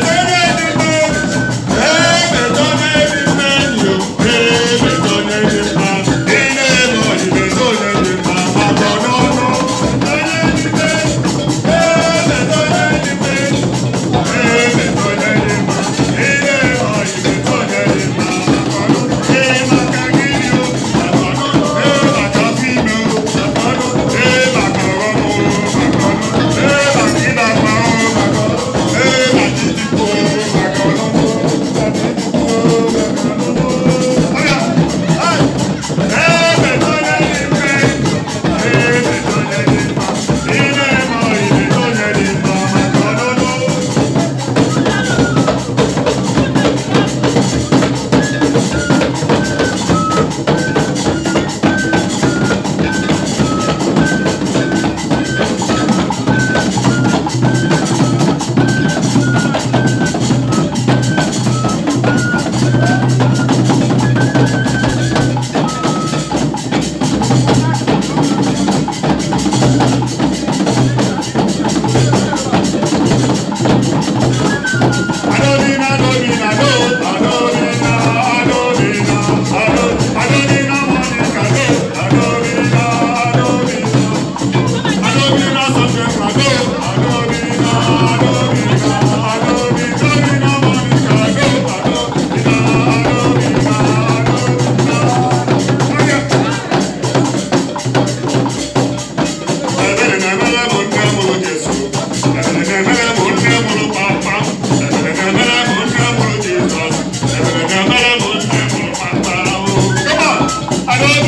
the Parole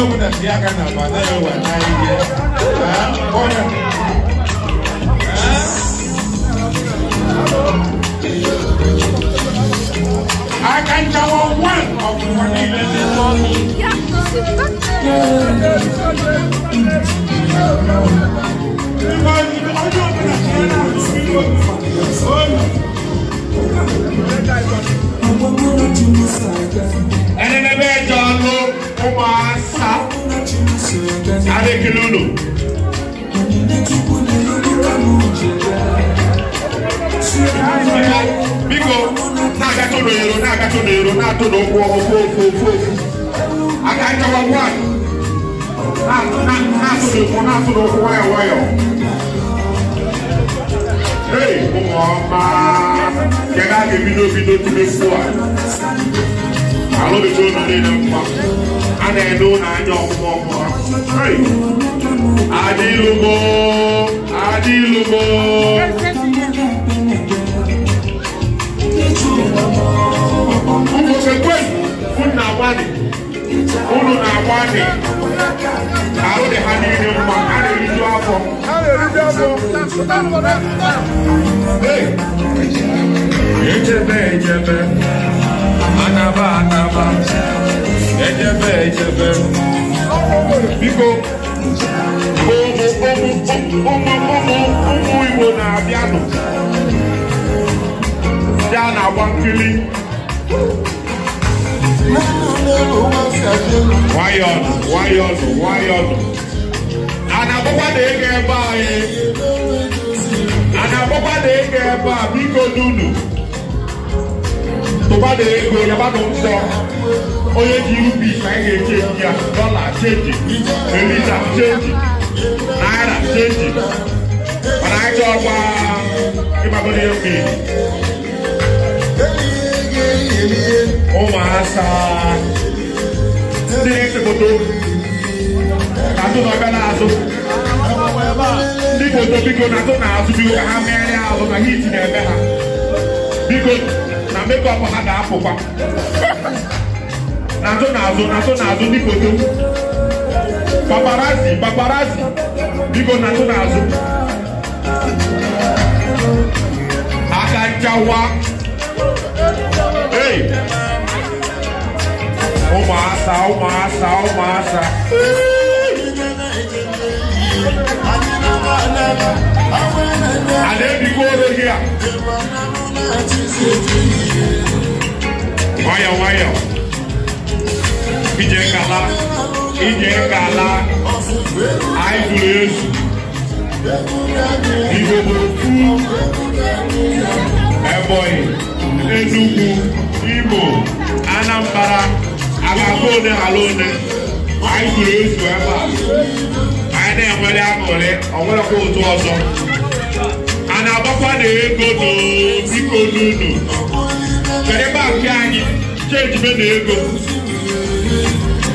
yau da ya kana ba da I can tell one of what he ó máa sá adékilólo. biko n'aga tó do yoro n'aga tó do yoro n'a tó do okwu ọkụ fo fo fo aga chọwa nwanyị n'a tó do okwu n'a tó do okwu nwayọ nwayọ. Hey, ụmụ ọma, kedu a ga-ebido bido tụrụ efu a? Alụbido nọ n'ile mma a na-edo n'anya ọkpụkpọ ọkpọ adịlụgo adịlụgo ụmụsekwen unu na-agbalị unu na-agbalị ahụ dị ha niile mma ha na-eriju afọ echebe echebe biko ụmụ ụmụ ụmụ ụmụ Igbo na-abịanụ ya na-agba nkiri nwayọnụ nwayọnụ nwayọnụ a na-agbakwa na ego ebe anyị a na-agbakwa na ego ebe a biko n'unu tọba de ego yaba nọ nsọ onye ji rubi ka anyị ga-echeji ya dọla cheji eliza cheji naira cheji mana anyị ọgba ịgbagoro ya mmiri ụmụasa ndị na-ese foto azụ na ọbịa na-azụ ndị foto biko na azụ na azụ biko ka ha megharịa azụ na hit na ha biko na mekọpụ ha ga nato n'azụ n'azụ n'azụ n'azụ dịkote paparazi paparazi biko n'azụ hey o massa ei massa o massa ijere ka ala anyị tụrụ ezu igbodopu ebonyi enugwu imo anambra agaga one ala one anyị tụrụ ezu ebe a anyị na-enwere aṅụrị onwerekwa ụtụ ọzọ a na-agbakwa na ego n'obiko n'unu kedu ebe akụ anyị chenji na ego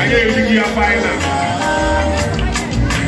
Ayé ìlú ní apá ìlànà.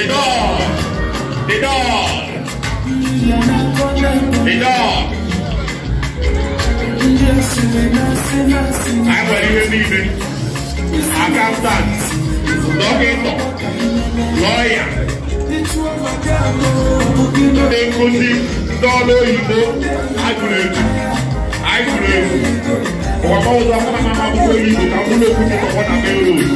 The dog. The dog. The dog. Àgbẹ̀ ìwé mi ibẹ̀, accountant, dókítà, lọ́ọ̀yà, ekusi dọ́ọ̀lù òyìnbó, agùrẹ̀lù, agùrẹ̀lù, ọ̀pọ̀ ọ̀dọ́ akọ́nàmọ́ àbúkọ́ yìí kò ká múlò kúti kọ̀kọ́ nàbẹ́ òòlù.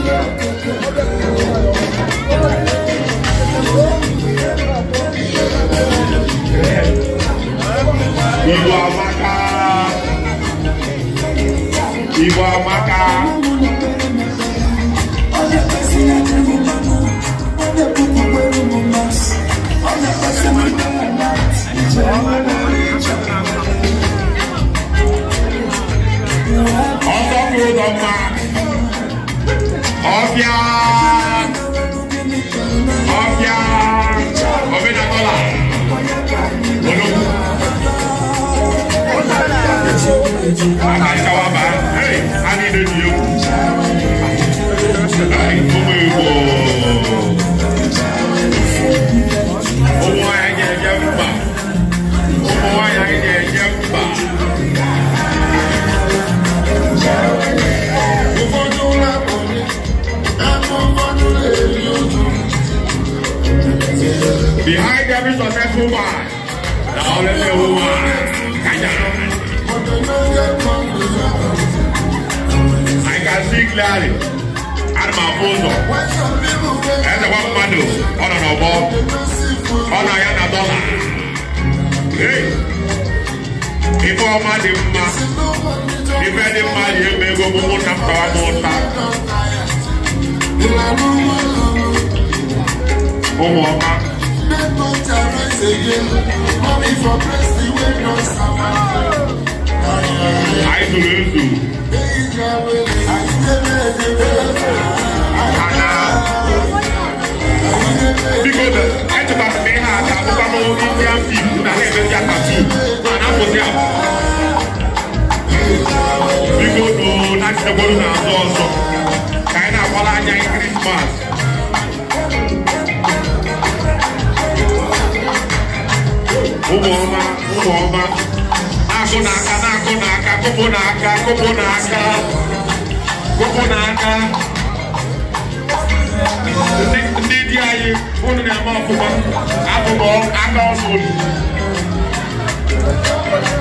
Ìwà àmàkà. Ìwà àmàkà. Ọ̀sán kúrò dọ̀gba. Ọ̀bíà. woman. Now let me woman. I can see clearly. And my photo. That's the one man do. On and above. On a yana dollar. Hey. Before my dim ma. Before I'm ma, you may go move on more than power Come on, come on again. Mommy for praise the way no I do love you. Because I took out the man, I took out my own Indian people, and I had to get my team, and I was there. Because, oh, that's the one that I was also. Kind of all I need Christmas. ụmụọma ụmụọma azụ n'aka na-akụ n'aka kụpụ n'aka kụpụ n'aka kụpụ n'aka ndị di anyị unu na-eme ọfụma abụbọ aka ọzọ